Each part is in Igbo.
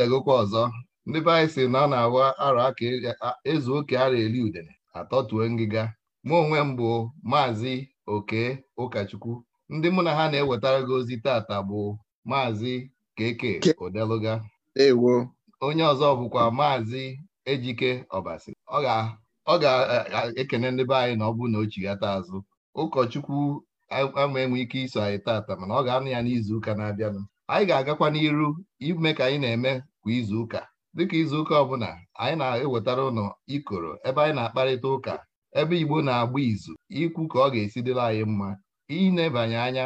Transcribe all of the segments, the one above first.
na-adagokwa ọzọ ndị be anyị si na ọ na agwa ara aka e, ezu oke ara eli udene atọtuo ngịga mụ onwe m bụ maazị oke ụkọchukwu ndị mụ na ha na-ewetara gị ozi tata bụ maazị keke odeluga onye ọzọ bụkwa maazị ejike ọbasi ọ ga-ekene ndị be anyị na ọ bụ na o chighata azụ ụkọchukwu ama enwe ike iso anyị tata mana ọ ga-anụ ya n'izu ụka na-abịanụ anyị ga-agakwa n'iru ime ka anyị na-eme kwa izuụka dịka izuụka ọbụla anyị na-ewetara ụnụ ikoro ebe anyị na-akparịta ụka ebe Igbo na-agba izu ikwu ka ọ ga-esi dịla anyị mma ịnebanye anya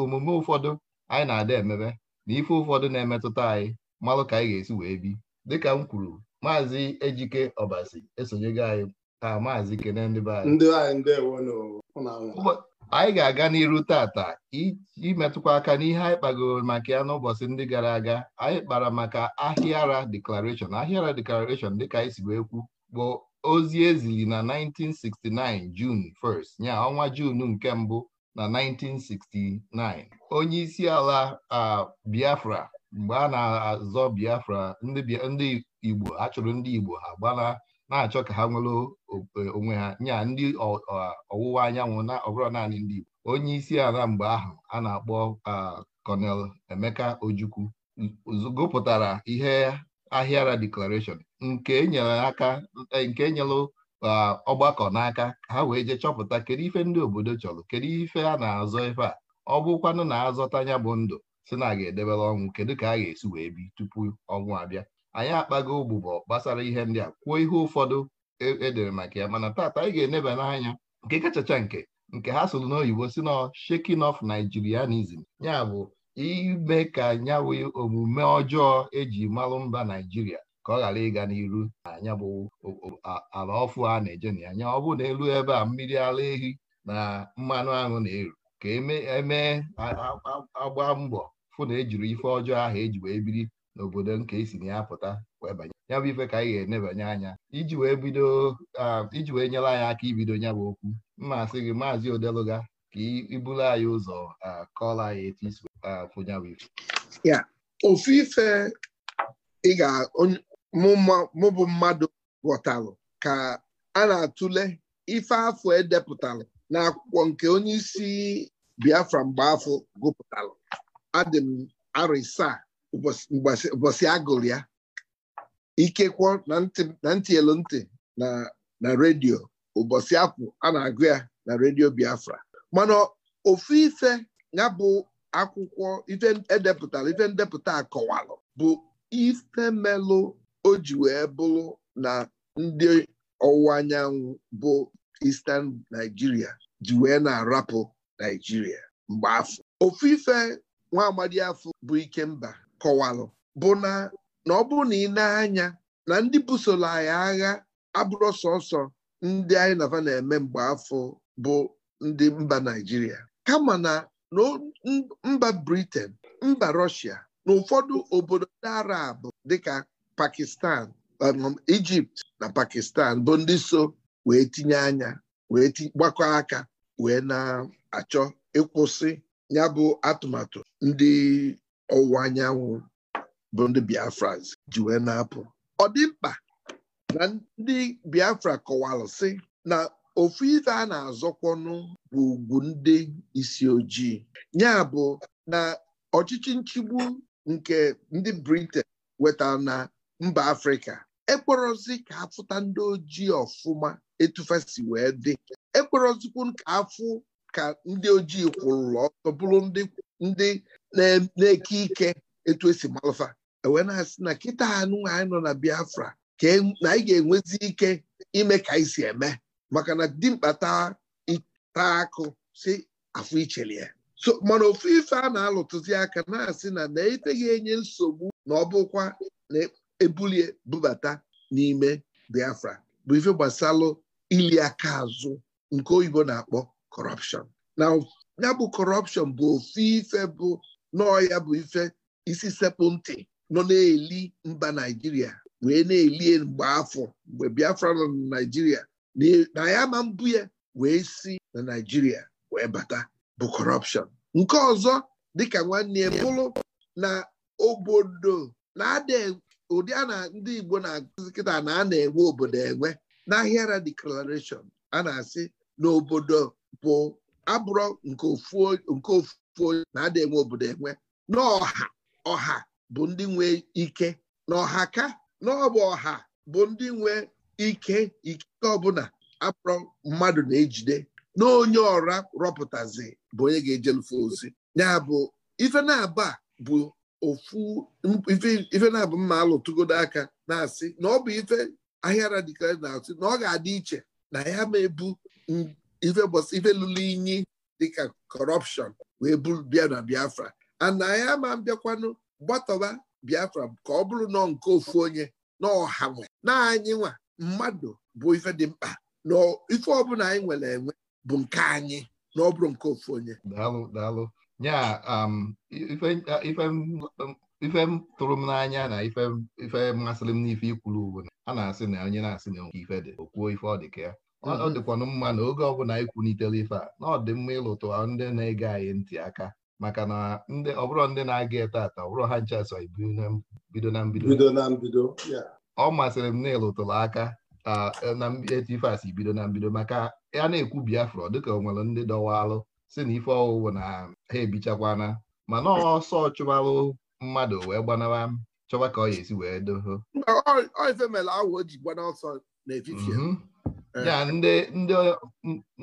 omume ụfọdụ anyị na-ada emebe na ife ụfọdụ na-emetụta anyị malụ ka anyị ga-esi wee bi dịka m kwuru maazị Ejike Ọbasi esonyego anyị a maazị Kene ndị be anyị anyị ga-aga n'iru tata imetụkwa aka n'ihe anyị kpagoro maka ya n'ụbọchị ndị gara aga anyị kpara maka ahịara deklarashọn ahịara deklarashọn dịka anyị si wee kwu bụ ozi ezili na 1969 Jun 1st nya ọnwa Jun nke mbụ na 1969 onye isi ala Biafra mgbe a na-azọ Biafra ndị Igbo a ndị Igbo ha gbana na-achọ ka ha nwere e, onwe ha nya ndị ọwụwa anyanwụ na ọbụrụ naanị ndị Igbo onye isi ala mgbe ahụ a na-akpọ kọnel Emeka Ojukwu gụpụtara ihe ahịara declaration nke enyere aka e, nke enyelụ ọgbakọ n'aka ha wee jee chọpụta kedu ife ndị obodo chọrọ kedu ife a na-azọ ife a ọ bụkwanụ na-azọta ya bụ ndụ si na a ga-edebere ọnwụ kedu ka a ga-esi wee bi tupu ọnwụ abịa anyị akpago ogbugbo gbasara ihe ndị a kwuo ihe ụfọdụ edere e maka ya mana taata anyị ga-eneba n'anya nke kachacha nke nke ha sụrụ n'oyibo si na shaking of Nigerianism ya bụ ime ka nyawe omume ọjọọ eji malụ mba Naijiria ka ọ ghara ịga n'iru na anya bụ ala ọfụ a na-eje na anya ọ bụ na elu ebe a mmiri ala ehi na mmanụ aṅụ na-eru ka eme e agba mbọ fụ na ejiri ife ọjọọ ahụ eji wee biri n'obodo nke isi na ya pụta wee banye ya bụ ife ka anyị ga-enebanye anya iji wee bido iji wee nyere anyị aka ibido ya bụ okwu mmasị gị maazị odeluga ka ibulu anyị ụzọ kọọla anyị etu isi bụ ife ya ofu ife ị ga mụ bụ mmadụ ghọtalụ ka a na-atụle ife afọ edepụtalụ akwụkwọ nke onye isi Biafra mgbe afọ gụpụtalụ adị m ụbọchị agụrụ ya ikekwọ na ntị elu ntị na redio ụbọchị apụ a na-agụ ya na redio Biafra mana ofu ife ya bụ akwụkwọ ife edepụtara ife ndepụta akọwalụ bụ ife melụ o ji wee bụrụ na ndị ọwụwa anyanwụ bụ Eastern Nigeria ji wee na-arapụ Nigeria mgbe afọ ofu ife nwa amadi afọ bụ Ikemba kọwalụ bụ na na ọ bụrụ na ị na-anya na ndị busoro anyị agha abụrụ sọsọ ndị anyị nava na-eme mgbe afọ bụ ndị mba Naịjirịa kama na mba briten mba rọshia na ụfọdụ obodo ndị Arab dịka Pakistan um, Egypt na Pakistan bụ ndị so wee tinye anya wee gbakọ aka wee na-achọ ịkwụsị ya atụmatụ ndị ọwụwa anyanwụ bụ ndị Biafra ji wee na-apụ ọ dị mkpa na ndị Biafra kọwara sị na ofu ife a na-azọkwọnụ bụ ugwu ndị isi ojii ya bụ na ọchịchị nchigbu nke ndị Britain weta na mba Afrịka ekporozi ka afụta ndị ojii ọfụma etufesi wee dị ekporozikwu ka afụ ka ndị ojii kwụrụrụ ọtọ bụrụ ndị na-eke ike etu esi malụfa ewee na-asị na kịta anụ anyị nọ na Biafra ka e, anyị ga-enwezi ike ime ka anyị si eme maka na dimkpa taa akụ si afọ ichelie so mana ofu ife a na-alụtụzi aka na-asị na na-eteghị enye nsogbu na ọbụkwa na-ebulie bubata n'ime Biafra bụ ife gbasalụ ili aka azụ nke oyibo na-akpọ kọrọpshọn na ya bụ kọrọpshọn bụ ofu ife bụ nọọ ya bụ ife isi sekpụ nọ na-eli mba naijiria wee na eli mgbe afọ mgbe biafra nọ na naijiria na ya ma mbụ ya wee si na naijiria wee bata bụ kọrọpshọn nke ọzọ dịka nwanne ya bụrụ na obodo na ụdị a na ndị igbo na-akụzi kịta na a na-enwe obodo enwe n'ahịara declaration a na-asị na obodo bụ abụrọ nke ofu onye na-ada enwe obodo enwe n'ọha ọha bụ ndị nwe ike na ọha ka n'ọbụ ọha bụ ndị nwe ike ike ọbụla abụrọ mmadụ na-ejide na onye ọra rọpụtazi bụ onye ga-ejelufe ozi ya bụ ife na-aba bụ ofu ife na-abụ mma alụtụgodo aka na-asị na ọ bụ ife ahịa radikal na-asị na ọ ga-adị iche na ya ma ebu ife ife lụrụ inyi dịka kọrọpshọn wee bịa na biafra anyị ma bịakwanụ gbatọba biafra ka ọ bụrụ nọ nke ofu onye na ọha nwe na anyị nwa mmadụ bụ ife dị mkpa na ife ọbụla anyị nwere enwe bụ nke anyị na ọ bụrụ nke ofu onye daalụ daalụ um, ife m tụrụ m n'anya na ife mmasịrị m n'ife ikwuru uwe a na-asị na onye na-asị na ife dị okwuo ife ọ dị ka ya ọ dịkwanụ mma na oge ọbụla anyị kwunitere ife a na ọ dị mma ịlụtụ ndị na-ege anyị ntị aka maka na ndị ọbụrụ ndị na-aga ete ata ọbụrụ ha ncha so bido na mbido ọ masịrị m na ịlụtụrụ aka e, na eti ife asị bido na mbido maka ya na-ekwu Biafra dịka ọ nwere ndị dọwalụ si na ife ọwụwụ na ha ebichakwana mana ọsọ chụbalụ mmadụ wee gbanara chọwa ka ọ ya esi wee doho ya ndị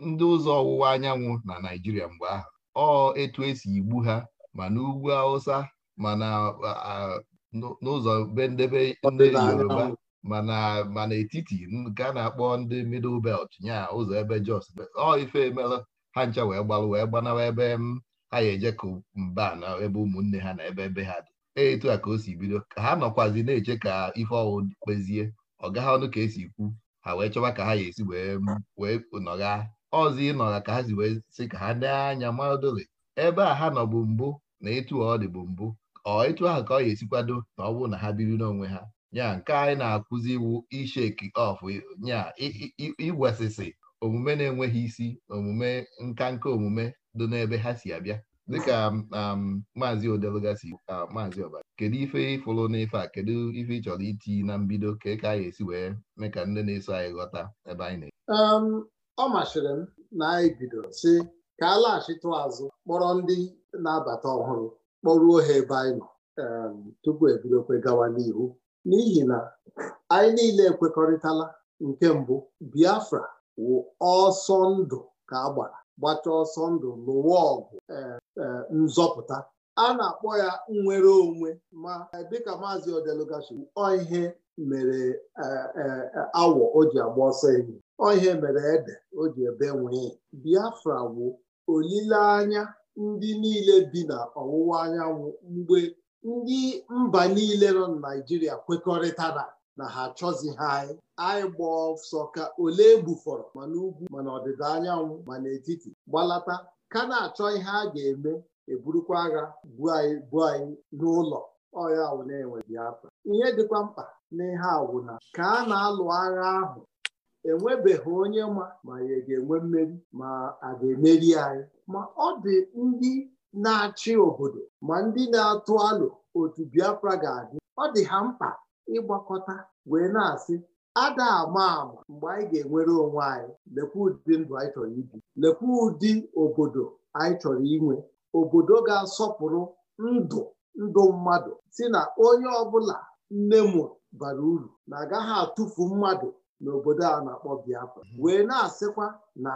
ndị ụzọ ọwụwa anyanwụ na Naịjirịa mgbe ahụ ọ etu esi igbu ha ma n'ugwu Hausa ma n'ụzọ be ndebe ndị Yoruba ma n'etiti nke a na-akpọ ndị middle belt nya ụzọ ebe Jos ọ ife emelụ ha ncha wee gbalụ wee gbanawa ebe ha ya eje ka mba na ebe ụmụnne ha na ebe ebe ha dị e, etu a ka o si bido ka ha nọkwazi na-eche ka ife ọwụ kpezie ọ gaghị ọnụ ka esi ikwu ha wee chọwa ka ha ya esi wee nọgha ọzọ ịnọgha ka ha si wee si ka ha dee anya maodole ebe a ha nọ bụ mbụ na etu ọ dị bụ mbụ ọ etu ahụ ka ọ ya esikwado na ọ bụrụ na ha biri n'onwe ha ya nke anyị na-akụzi iwu isheki of nya igwesịsị omume na-enweghị isi omume nka nka omume dị n'ebe ha si abịa dịka um, maazị odelugasi uh, maazị ọbara kedu ife ịfụrụ n'ife a kedu ife ị chọrọ iti na mbido ka ka anyị esi wee mee ka ndị na-eso anyị ghọta ebe anyị na-eji um, ọ masịrị m na anyị bidoro si ka a laghachitụ azụ kpọrọ ndị na-abata ọhụrụ kpọruo ha ebe anyị nọ um, tupu ebidokwe gawa n'ihu n'ihi na anyị niile ekwekọrịtala nke mbụ Biafra wụ ọsọ ndụ ka a gbara gbata ọsọ ndụ lụwa ọgụ e, e, nzọpụta a na-akpọ ya nnwere onwe ma e, dịka maazị odelugashi ihe mere awọ o ji agba ọsọ enyi ihe mere ede o ji ebe nwee biafra bụ olileanya ndị niile bi na ọwụwa anyanwụ mgbe ndị mba niile nọ na naijiria kwekọrịtara na ha achọzi anyị anyị gba ọsọ ka ole bufọrọ? ma n'ugwu ma ọdịda anyanwụ ma n'etiti gbalata ka na-achọ ihe a ga-eme eburukwa agha bu anyị bu anyị n'ụlọ ọya ahụ na-enwe Biafra ihe dịkwa mkpa n'ihe na ka a na-alụ agha ahụ enwebeghị onye ma ma ya ga-enwe mmeri ma a ga-emeri anyị ma ọ dị ndị na-achị obodo ma ndị na-atụ alụ otu Biafra ga-adị ọ dị ha mkpa ịgbakọta wee na-asị ada ama mgbe anyị ga-enwere onwe anyị lekwa ụdị ndụ anyị chọrọ ibi lekwa ụdị obodo anyị chọrọ inwe obodo ga-asọpụrụ ndụ ndụ mmadụ si na onye ọbụla nne mụrụ bara uru na agaghị atụfu mmadụ n'obodo a na-akpọ Biafra mhm. wee na-asịkwa na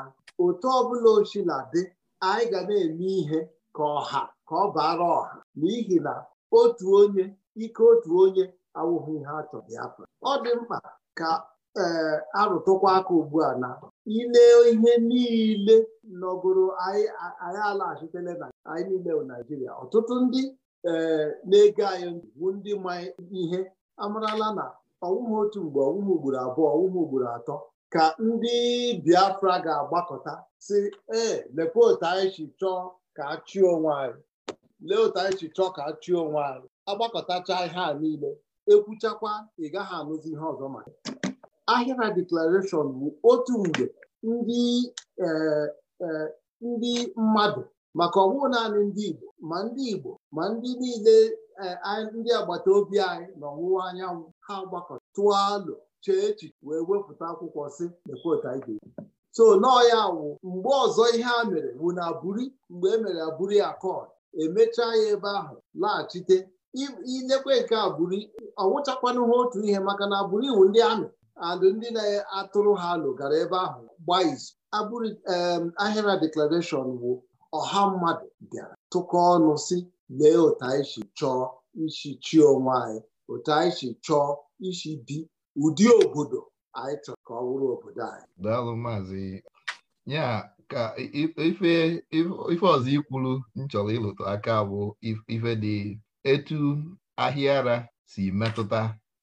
otu ọbụla ochila dị anyị ga na-eme ihe ka ọha ka ọ bara ọha n'ihi na otu onye ike otu onye awụghị ihe a chọrọ ya afọ ọ dị mkpa ka ee eh, arụtụkwa aka ugbu a na ile ihe niile nọgoro anyị alaghachitele na anyị niile bụ naijiria ọtụtụ ndị ee eh, na-ege anyị bụ ndị ma ihe amarala na ọwụmụ otu mgbe ọwụmụ ugboro abụọ ọwụmụ ugboro atọ ka ndị biafra ga-agbakọta si ee eh, otu anyị chọọ ka a chụọ onwe anyị lee otu anyị si chọọ ka a chụọ onwe anyị agbakọtacha ihe a niile ekwuchakwa ị gaghị anụzi ihe ọzọ maka ahịra deklarashọn bụ otu mgbe e, e, ndị mmadụ maka ọ naanị ndị Igbo ma ndị Igbo ma ndị niile e, ndị agbata obi anyị na ọwụwa anyanwụ ha gbakọ tụọ chee echiche wee wepụta akwụkwọ si ekweotaige so nọọ ya wụ mgbe ọzọ ihe a mere bụ na aburi mgbe e mere aburi akọd emechaa ya ebe ahụ laghachite ilekwe nke a ọnwụchakwana ha otu ihe maka na abụrụ iwu ndị amị andụ ndị na-atụrụ ha alụ gara ebe ahụ gbaa izu abụrụ ahịra deklarashọn bụ ọha mmadụ bịara tụkọ ọnụ si lee otu anyị si chọọ isi chi onwe anyị otu anyị si chọọ isi bi ụdị obodo anyị chọrọ ka ọ bụrụ obodo anyị daalụ maazị ya ka ife ọzọ ikwuru m chọrọ ịlụtụ aka bụ ife dị etu ahịa ara si metụta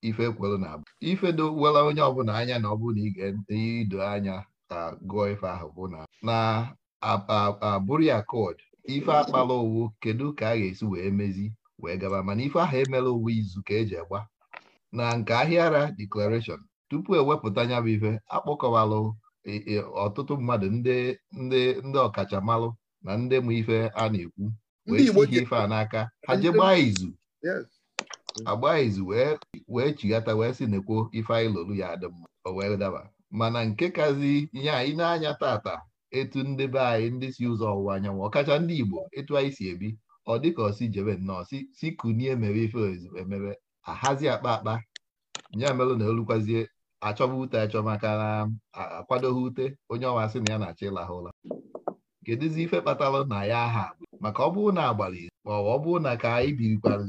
ife kwelu na abụ ife dowela onye ọbụla anya na ọ bụ na ị ga-ido anya ka gụọ ife ahụ bụ na na abụrụ ya kod ife akpala owu kedu ka a ga-esi wee mezi wee gaba mana ife ahụ emela owu izu ka eji agba na nke ahịa ara deklarashọn tupu ewepụta anya bụ ife akpọkọwalụ e, e, ọtụtụ mmadụ ndị ndị ọkachamalụ na ndị m ife a na-ekwu wee ihe ife a n'aka ha jee gbaa izu agbaa izu wee chighata wee sị na ife anyị lolu ya adị mma o wee daba mana nke kazi ihe anyị na-anya tata etu ndị be anyị ndị si ụzọ ọwụwa anyanwụ ọkacha ndị Igbo etu anyị si ebi ọ dịka osi jebe nnọọ si kunie mere ife ozu emebe ahazi akpa akpa ya melụ na elukwazie achọba ute achọmaka maka na akwadoghị ute onye ọwa sị na ya na-achọ ịlahụ ụla kedụzi ife kpatara na ya aha maka ọ bụrụ na agbalị izu ma ọ bụrụ na ka anyị birikwara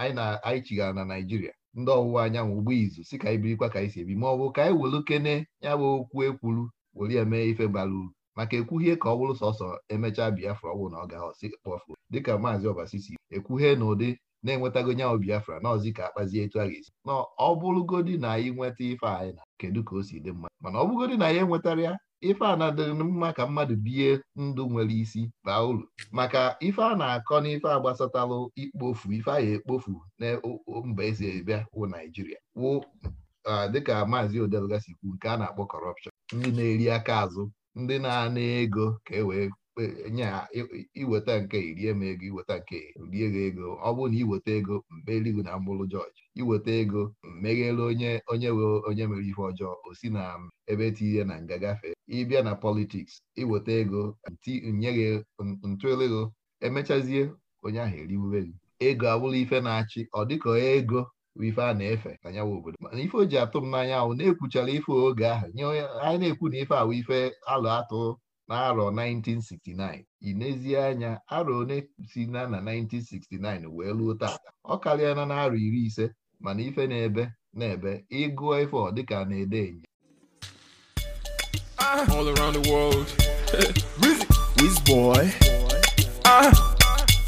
anyị na anyị chigara na Naijiria ndị ọwụwa anyanwụ ugbo izu si ka anyị birikwa ka anyị si ebi ma ọ bụ ka anyị welu kene ya bụ okwu ekwuru were mee ife gbara uru maka ekwuhie ka ọ bụrụ sọsọ emechaa Biafra ọgwụ na ọ ga-aghọsị kpọfuo dịka maazị Ọbasi si ekwuhie na ụdị na-enwetago nyanwụ Biafra na ọzi ka akpazie etu a ga-esi na ọ bụrụgodi na anyị nweta ife anyị na kedu ka o si dị mma mana ọ na ya enwetara ya ife a na-adịrị mma ka mmadụ bie ndụ nwere isi baa uru maka ife a na-akọ n'ife a gbasatalụ ikpofu ife a ya ekpofu na mba ezi ebia wụ Naijiria wụ dịka maazị odelgasi kwu nke a na-akpọ kọrọpshọn ndị na-eri aka azụ ndị na-ana ego ka e wee nye iweta nke rie m ego iweta nke rie gị ego ọ bụrụ na iweta ego mmerigwu na mgbụrụ jọji iweta ego mmeghere onye onye we onye mere ihe ọjọọ o si na ebe tinye na nga gafee ịbịa na politiks iweta ego nye gị ntụelego emechazie onye ahụ eriwube gị ego abụrụ ife na-achị ọ dịka ego ife a na-efe na nyawa obodo mana ife o ji atụ m n'anya ahụ na-ekwuchara ife oge ahụ nye anyị na-ekwu na ife ahụ ife alụ atụ n'arọ 1969 ị n'ezie anya arọ one si na na 1969 wee luo taata ọ karịa na narọ iri ise mana ife na-ebe na-ebe ịgụọ ife ọ dịka na-ede enye ah. all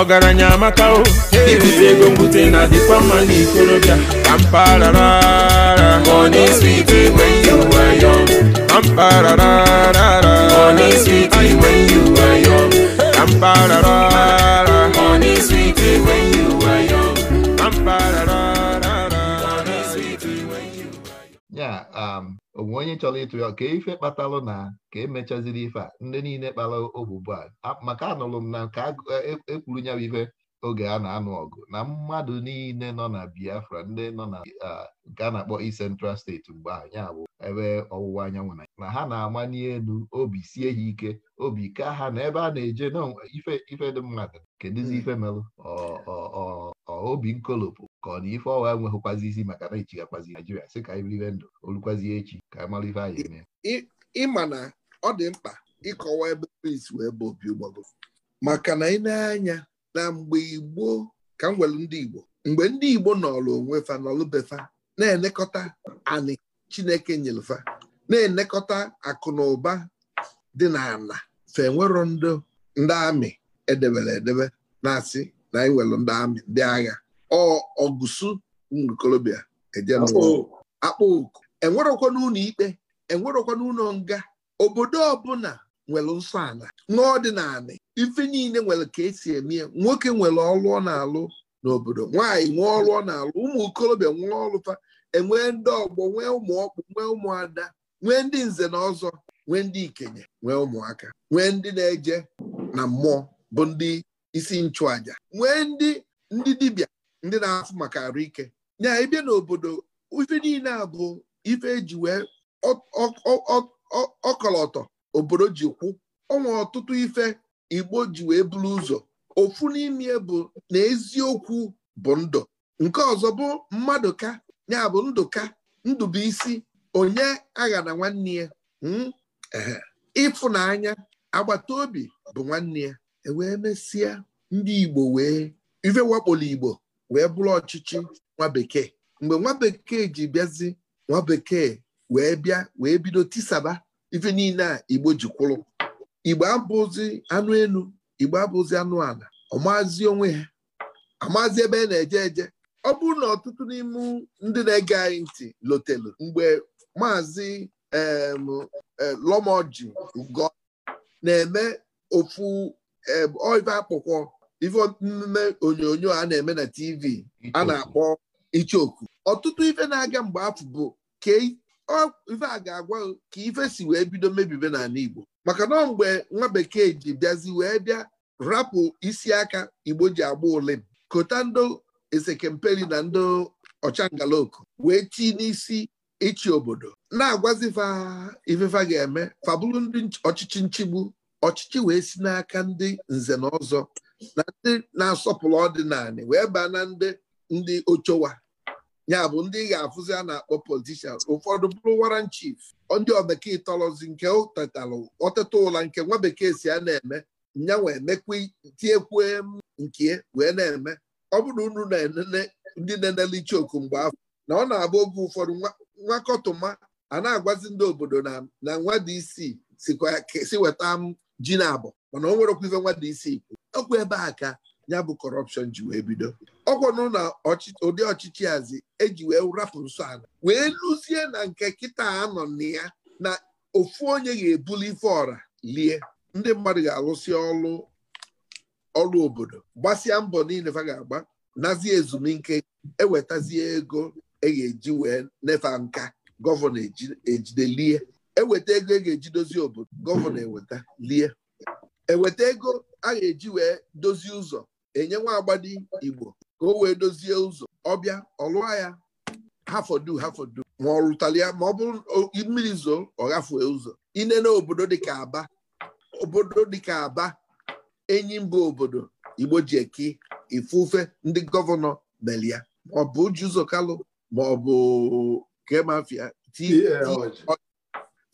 ọgaranya amaka o ikute ego mbute na dịkwa mma n'ikorobịa kampara money sweet when you young sweet when you young onwe onye chọrọ ịtụ ya ka ife e kpatalụ na ka emechaziri ife a ndị niile kpara obubu a maka anụrụ m na ka ekwuru e ya ife oge a na-anụ ọgụ na mmadụ niile nọ na Biafra ndị nọ na nke a na-akpọ i Central steeti mgbe anyị abụ ebe ọwụwa anyanwụ na na ha na-ama n'elu obi sie ha ike obi ka ha na ebe a na-eje ife dị mmadụ kedụzi hmm. ife melụ obi nkolopụ ka ọ na ife ọwa enweghịkwazi isi maka na ichighakwazi Naijiria sị ka anyị biribe ndụ olukwazi echi ka anyị mara ife anyị eme ịma na ọ dị mkpa ịkọwa ebe Peace wee bụ obi ụgbago maka na ị na-anya na mgbe Igbo ka m nwere ndị Igbo mgbe ndị Igbo nọrọ onwe fa nọlụbefa na-enekọta anị Chineke nyelefa na-enekọta akụ na ụba dị n'ala fa enwero ndị amị edebere edebe na-asị na anyị e nwere ndị amị ndị agha ọgụsụ kolobia akpụ oku enwerokwa n'ụlọ ikpe enwerokwa n'ụlọ nga obodo ọbụla nwere nsọ ala n'ọdịnala ife niile nwere ka esi eme nwoke nwere ọlụọ ọ na-alụ n'obodo nwaanyị nwee ọlụọ ọ na-alụ ụmụ okorobịa nwee ọrụfa enwee ndị ọgbọ nwee ụmụ ọkpụ nwee ụmụada nwee ndị nze na ọzọ nwee ndị ikenye nwee ụmụaka nwee ndị na-eje na mmụọ bụ ndị isi nchụaja nwee ndị ndị dibịa ndị na-afụ maka arụ ike nya ịbịa n'obodo ife niile a bụ ife eji wee ọkọlọtọ obodo ji kwụ ọnwa ọtụtụ ife igbo ji wee buru ụzọ ofu n'ime bụ na eziokwu bụ ndụ nke ọzọ bụ mmadụ ka ya bụ ndụ ka ndụbụisi onye agha na nwanne ya hmm, ịfụnanya agbata obi bụ nwanne ya ewee mesịa ndị igbo wee ife wakporo igbo wee bụrụ ọchịchị nwa bekee mgbe nwa bekee ji bịazi nwa bekee wee bịa wee bido tisaba ife niile a igbo ji kwụrụ igbo abụzi anụ elu igbo abụzi anụ ala ọmazi onwe ha amazi ebe a na-eje eje ọ bụrụ na ọtụtụ n'ime ndị na-ege anyị ntị lotelu mgbe maazị lomoji go na-eme ofu oive akpụkwọ ife onyonyo a na-eme na tv a na-akpọ ichoku ọtụtụ ife na-aga mgbe afọ bụ ka ife a ga-agwa ka ife si wee bido mebibe n'ala igbo maka na mgbe nwa bekee ji bịazi wee bịa rapụ isi aka igbo ji agba ụlị kota ndị esekemperi na ndị ọchangalaoku wee tii n'isi ịchị obodo na-agwazi ifefa ga-eme fabụrụ ndị ọchịchị nchigbu ọchịchị wee si n'aka ndị nze na ọzọ na ndị na-asọpụrụ ọdịnala wee baa na ndị ndị ochowa ya bụ ndị ga-afụzi a na-akpọ politishan ụfọdụ bụrụ waran chief ndị obekee tọrọzi nke ụtatalụ ọtụtụ ụla nke nwa bekee si a na-eme nyanwa emekwa tiekwu nke wee na-eme ọ bụrụ unu na-enene ndị na-enele ichioku mgbe afọ na ọ na-abụ oge ụfọdụ nwakọtụma a na-agwazi ndị obodo na nwa dị isii si weta m ji na abụ mana o nwerekwa ife nwa dị isii ọkwa ebe a ka ya bụ kọrọpshọn ji wee bido ọkwanụ na ụdị ọchịchị azi eji wee rapụ nsọ ala wee lụzie na nke kịta anọ na ya na ofu onye ga-ebuli ife ọra lie ndị mmadụ ga-alụsị ọlụ ọlụ obodo gbasịa mbọ niile fa ga-agba nazie ezumike ewetazie ego e ga-eji wee nefa nka gọvanọ ejidelie eweta ego e ga-eji dozie obodo gọvanọ eweta lie eweta ego a ga-eji wee dozie ụzọ enye nwa agbadi igbo ka o wee dozie ụzọ ọbịa ọlụa ya hafodu hafodu ma ọ rụtara ya ma ọ bụrụ mmiri zoo ọ gafue ụzọ ine na obodo dịka aba obodo dịka aba enyi mba obodo igbo ji ifufe ndị gọvanọ meli ma ọ bụ uji ụzọ kalụ ma ọ bụ kemafia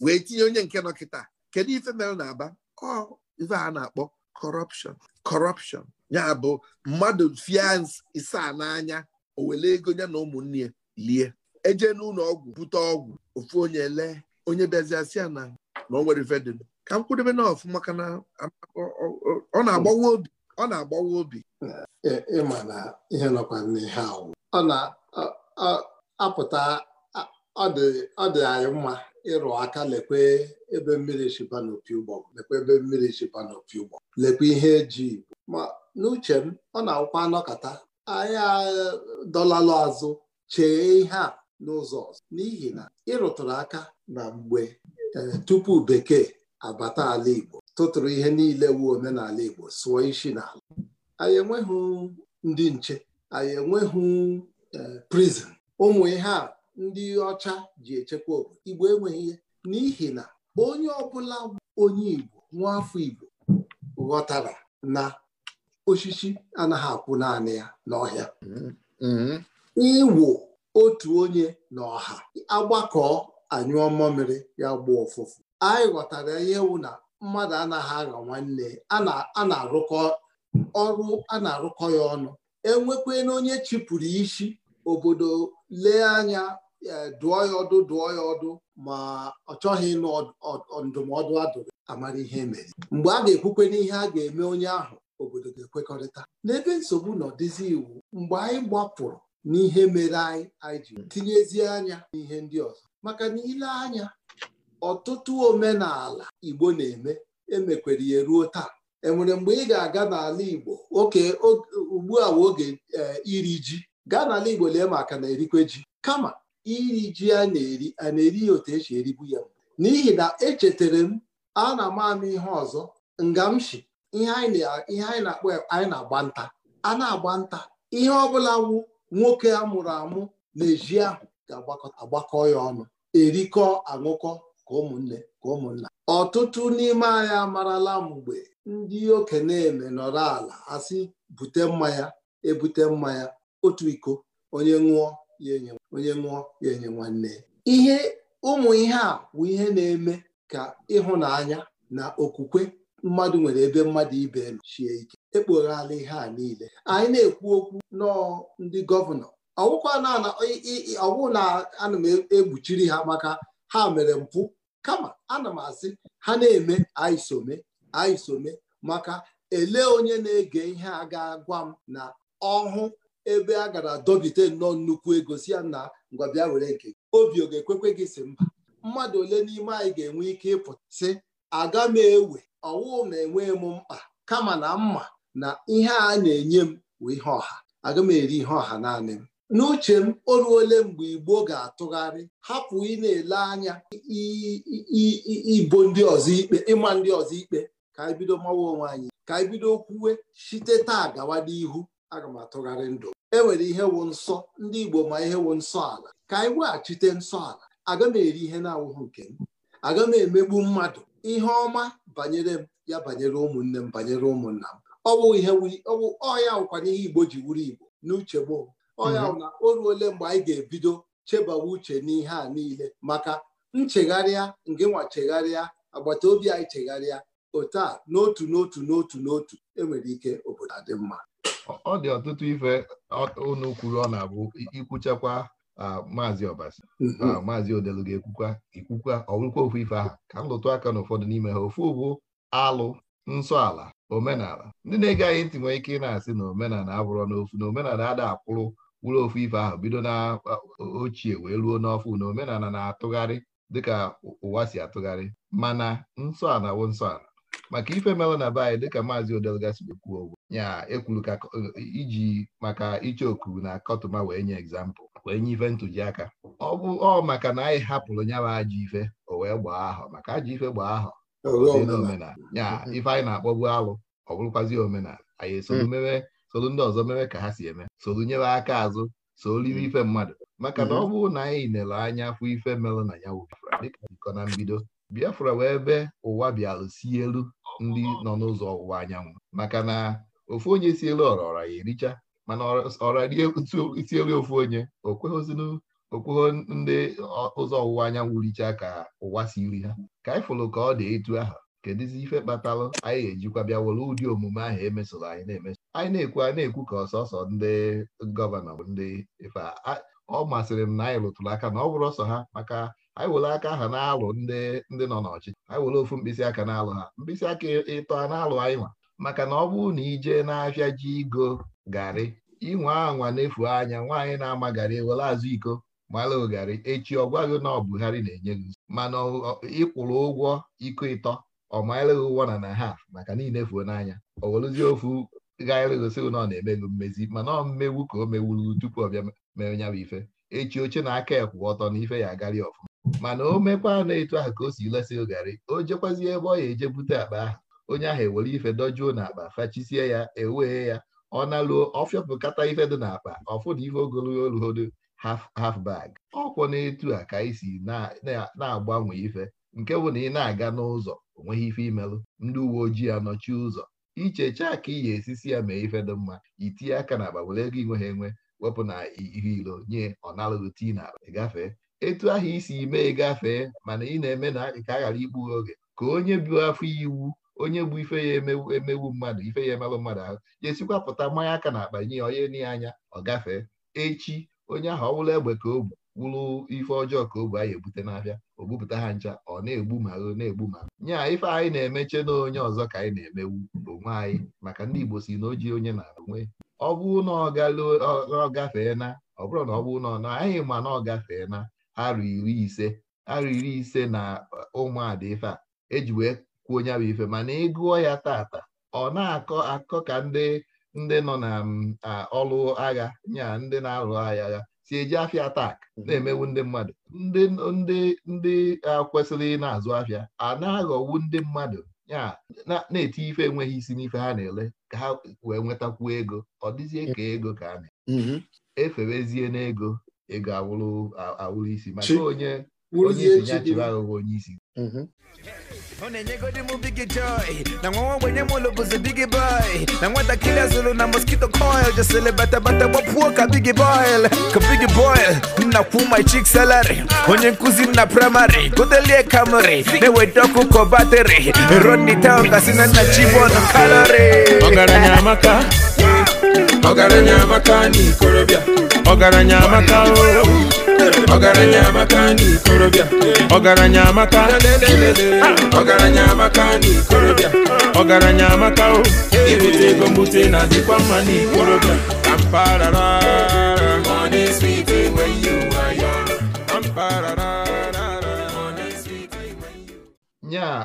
wee tinye onye nke nọ kịta kedu ife mere na aba ife a na-akpọ kọrọpshọn kọrọpshọn ya bụ mmadụ fians isaa n'anya o ego ya na ụmụnne ya lie eje n'ụlọ ọgwụ bute ọgwụ ofu onye lee onye bịaziasị na na o nwere ka m kwudebe na maka na ọ na-agbawa obi ọ na-agbawa obi ịma na ihe nọkwa n'ihe ahụ ọ na-apụta ọ dị anyị mma ịrụ aka lekwe ebe mmiri shiba n'opi ụgbọ lekwe ebe mmiri shiba n'opi ụgbọ lekwe ihe eji igbo ma n'uche m ọ na-akwụkwa anọkata anyị dọlalụ azụ chee ihe a n'ụzọ ọzọ n'ihi na ịrụtụrụ aka na mgbe e, tupu bekee abata ala igbo tụtụrụ ihe niile wu omenala igbo sụọ isi n'ala anyị enweghị ndị nche anyị enweghị e, prizin ụmụ ihe a ndị ọcha ji echekwa obodo igbo enweghị ihe n'ihi na onye ọbụla onye igbo nwa afọ igbo ghọtara na osisi anaghị akwụ naanị ya n'ọhịa iwu otu onye n'ọha. Agbakọọ agbakọ anyụọ mmamịrị ya gbuo ụfụfụ anyị ghọtara ihe wụ na mmadụ anaghị aghọ nwanne a na-arụkọ ọrụ a na-arụkọ ya ọnụ enwekwana onye chịpụrụ isi obodo lee anya dụọ ya ọdụ dụọ ya ọdụ ma ọ chọghị ịnụ ndụmọdụ adụrụ amara ihe e mere mgbe a ga-ekwukwe n'ihe a ga-eme onye ahụ obodo ga-ekwekọrịta n'ebe nsogbu na dịzi iwu mgbe anyị gbapụrụ n'ihe mere anyị anyị ji tinyezie anya n'ihe ndị ọzọ maka na ile anya ọtụtụ omenala Igbo na-eme emekwere ya ruo taa enwere mgbe ị ga-aga n'ala Igbo oke ugbu a oge eh, iri ji gaa n'ala Igbo lee maka na erikwe ji kama iri ji a na-eri a na-eri ya otu esi eribu ya n'ihi na echetara m a na m amụ ihe ọzọ ngamshi ihe anyị na-akpọ anyị na-agba nta a na-agba nta ihe ọbụla wụ nwoke a mụrụ amụ na-eji ahụ ga-agbakọ ya ọnụ erikọ aṅụkọ ka ụmụnne ka ụmụnna ọtụtụ n'ime anyị amarala mgbe ndị okenye eme nọrọ ala asị bute mmanya ebute mmanya otu iko onye ṅụọ ya enye onye nwụọ ya enye nwanne ihe ụmụ ihe a bụ ihe na-eme ka ịhụnanya na okwukwe mmadụ nwere ebe mmadụ ibe elu chie ike ekpoghala ihe a niile anyị na-ekwu okwu nọọ ndị gọvanọ ọwụ na ana m egbuchiri ha maka ha mere mpụ kama ana m asị ha na-eme anyị ayisome maka ele onye na-ege ihe a ga-agwa m na ọhụ ebe a gara dobite nnọọ nnukwu ego si ya na ngwabịa were nke obi ọ ga-ekwekwe gị si mba mmadụ ole n'ime anyị ga-enwe ike ịpụtasị aga m ewe ọwụ na-enwe m mkpa kama na mma na ihe a na-enye m bụ ihe ọha aga m eri ihe ọha naanị m n'uche m o ruole mgbe igbo ga-atụgharị hapụ ị na-ele anya ibo ndị ọzọ ikpe ịma ndị ọzọ ikpe ka anyị bido mawa onwe anyị ka anyị bido kwuwe site taa gawa n'ihu aga m atụgharị ndụ enwere ihe wụ nsọ ndị Igbo ma ihe wụ nsọ ala ka anyị weghachite nsọ ala aga m eri ihe na-awụghị nke m aga m emegbu mmadụ ihe ọma banyere m ya banyere ụmụnne m banyere ụmụnna m ọwụ ihe ọya wụkwana ihe Igbo ji wuru Igbo n'uche gboo ọya wụ na o ruole mgbe anyị ga-ebido chebawa uche n'ihe a niile maka nchegharịa nke nwa chegharịa agbata obi anyị chegharịa otu a n'otu n'otu n'otu n'otu enwere ike obodo adị mma ọ dị ọtụtụ ife unu kwuru ọ na-abụ ikwuchakwa maazị ọbasi mm-hmm. maazị odelu ga-ekwukwa ikwukwa ọwụkwa ofu ife ahụ ka m lụtụ aka n'ụfọdụ n'ime ha ofu bụ alụ nsọ ala omenala ndị na-egaghị ntị nwee ike ị na-asị na omenala abụrọ n'ofu na omenala ada akwụrụ wụrụ ofu ife ahụ bido na ochie wee ruo n'ọfụ na omenala na-atụgharị dịka ụwa si atụgharị mana nsọ ala wụ nsọ ala maka ife melụ na be anyị dịka maazị odelu gasibekwuo ya ekwuru ka e, e, iji maka iche oku na kọtụma wee nye egzampụl wee nye ife ntụjiaka ọ bụ ọ maka na anyị hapụrụ nyawa ajọ ife o wee gbaa ahọ maka ajọ ife gbaa ahọ omenala ya ife anyị na-akpọbu alụ ọ bụrụkwazi omenala anyị esoro hmm. mewe soro ndị ọzọ mewe ka ha si eme solu nyere aka azụ soliri hmm. ife mmadụ maka na hmm. ọ bụ na anyị nere anya afọ ife melụ na ya dịka na mbido Biafra wee ebe ụwa bịalụ si elu ndị nọ n'ụzọ ọwụwa anyanwụ maka na ofu onye si elu ọra ọra ya ericha mana ọra rie isi elu ofu onye okweghịzinu okweghị ndị ụzọ ọwụwa anyanwụ richa ka ụwa si iri ha ka anyị fụrụ ka ọ dị etu aha kedụzi ife kpatalụ anyị ga-ejikwa bịa were ụdị omume ahụ emesoro anyị na-emeso anyị na-ekwu anyị na-ekwu ka ọsọsọ ndị gọvanọ ndị ife ọ masịrị m na anyị rụtụrụ aka na ọ bụrụ ọsọ ha maka anyị were aka aha na-alụ ndị ndị nọ n'ọchịchị anyị were ofu mkpịsị aka na-alụ ha mkpịsị aka ịtọ a na-alụ anyị maka na ọ bụrụ na ije n'afịa ji igo garị inwe anwa na-efu anya nwaanyị na-ama garị ewere azụ iko mara ogari echi ọ gwaghị na ọ Buhari na-enye gị mana ịkwụrụ ụgwọ iko ịtọ ọ mara ụgwọ na na ha maka niile fuo n'anya o werụzie ofu gaarịgosi na ọ na-emego mmezi mana ọ mmegbu ka o mewuru tupu ọ bịa mere ya ife echi oche na aka ekwụ ọtọ na ife ya agarị ọfụma mana o mekwa na etu ahụ ka o si lesị garị o jekwazie ebe ọ ya eje bute akpa ahụ onye ahụ ewere ife dojuo n'akpa fachisie ya ewee ya ọ naluo ọfịọpụkata ife dị n'akpa ọfụ ife ogologo oluhodo haf bag ọkwọ na-etu a ka isi na-agbanwe ife nke bụ na ị na-aga n'ụzọ onweghị ife imelụ ndị uwe ojii anọchi ụzọ ichechaa ka iyi esisi ya mee ife dị mma itinye aka na akpa were ego inwe ha enwe wepụ na ihe ilo nye ọnalụghị tii na gafee etu ahụ isi mee gafee mana ị na-eme na ka a ghara ikpughe oge ka onye bụ afọ iwu onye bụ ife ya emewu mmadụ ife ya emerụ mmadụ ahụ jesikwa pụta mmanya aka na akpa nye ya onye nye anya ọ gafee echi onye ahụ ọ wụrụ egbe ka o bu wụrụ ife ọjọọ ka o bu anyị ebute n'abịa o bupụta ha ncha ọ na-egbu ma o na-egbu ma nye a ife anyị na-emeche na onye ọzọ ka anyị na-emewu onwe anyị maka ndị Igbo si na oji onye na onwe ọ bụ na ọ gafee na ọ bụrụ na ọ bụ na ọ na ma na ọ gafee na arụ iri ise arụ iri ise na ụmụada ife a e kwuo onye bụ ife mana ịgụọ e ya tata ọ na-akọ akọ ka ndị ndị nọ na mm, ọlụ agha nya ndị na-alụ agha ya si eji afịa atak mhm. na-emewu ndị mmadụ ndị ndị ndị kwesịrị na-azụ afịa a na-aghọwu ndị mmadụ ya na-eti ife enweghị isi n'ife ha na-ele ka ha wee nwetakwuo ego ọ dịzie ka ego ka a na mhm. eferezie n'ego ego awụrụ isi maka onye onye isi ya chịrị aghụghọ onye isi onenye m bigi joy na nwa ogbenye m ụlọ bụzi big boy na nwatakịrị azụrụ na mosquito coil jesịrị batabata gbapuo ka big boil ka big boil nna kwu my chick salary onye nkụzi nna na praịmarị godelie kamri na-eweta ọkụ kọ batịrị rodney na nna chibon kalori ọgaranya amaka anyị ikorobia. ọgaranya amaka ọgaranya amaka anyị ikorobia. ọgaranya amaka ọgaranya amaka na ikorobịa ọgaranya amaka o ebute ego mbute na adịkwa mma na ikorobịa ka mpaghara money sweet when you are young mpaghara nyaa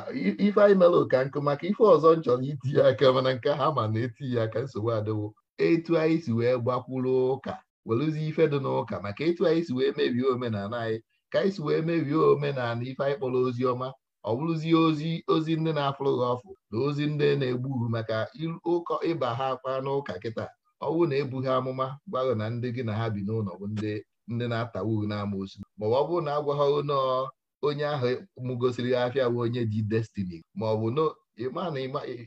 ife anyị mere ụka nkụ maka ife ọzọ njọ na iti ya aka mana nke ha ma na-eti ya aka nsogbu adịwo etu anyị si wee gbakwuru ụka werụzi ife dị n'ụka maka etu anyị si wee mebie omenala anyị ka anyị si wee mebie omenala ife anyị kpọrọ ozi ọma ọ bụrụzie ozi ozi ndị na-afụrụ gị ọfụ na ozi ndị na-egbu maka ụkọ ịba ha akpa n'ụka kịta ọ bụrụ na ebughị amụma gwaghị na ndị gị na ha bi n'ụlọ bụ ndị ndị na n'ama n'amoosu maọbụ ọ bụrụ na agwaghị nọọ onye ahụ mụgosiri afịa bụ onye ji destini maọbụ ịma na